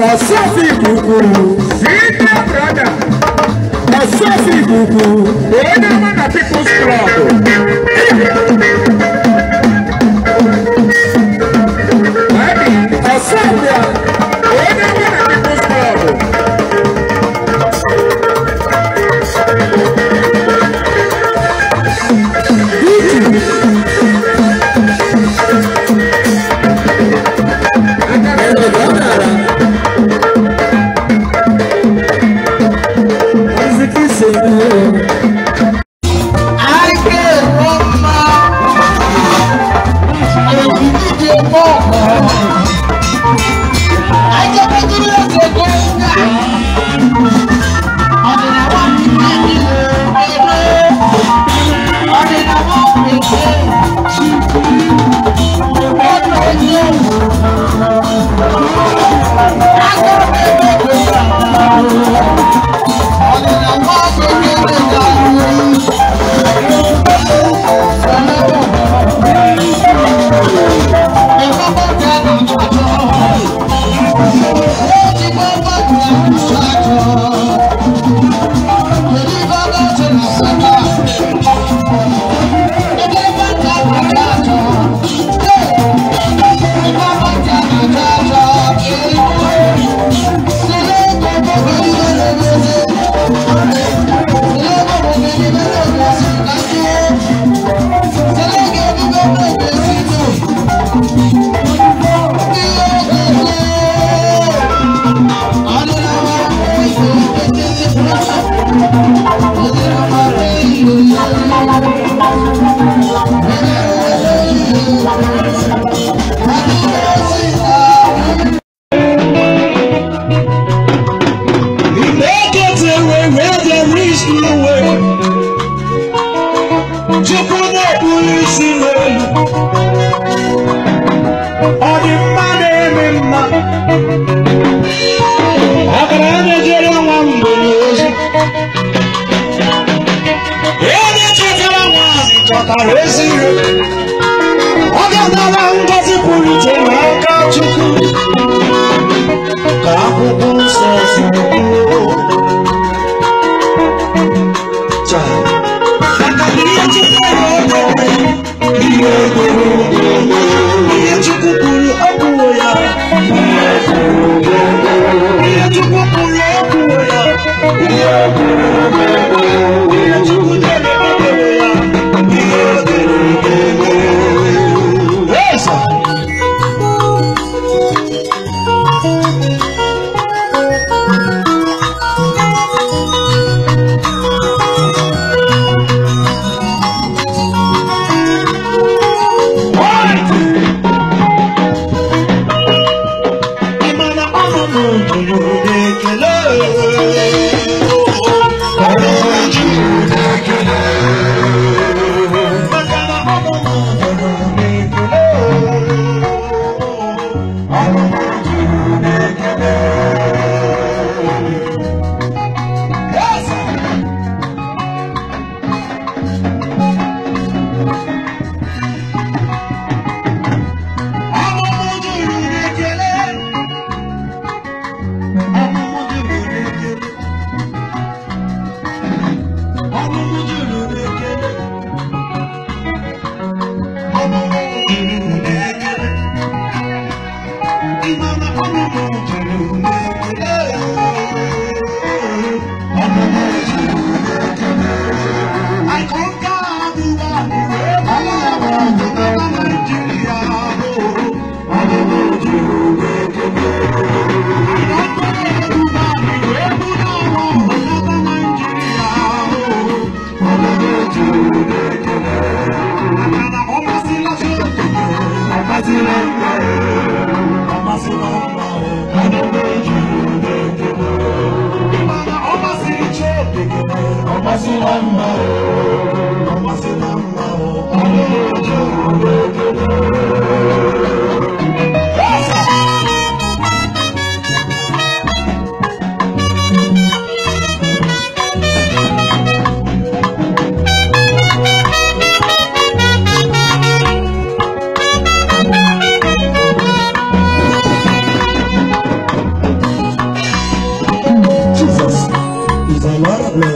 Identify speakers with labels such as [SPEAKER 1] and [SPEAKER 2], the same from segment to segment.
[SPEAKER 1] Osasi é Bubu Sita brother Osasi Bubu Onye mana people strong akara ezi nri ọ ga-adara ngozi pụrụ iche n'aka Chukwu ka akwụkwọ nsọ si kwuo ihe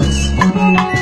[SPEAKER 1] Deus.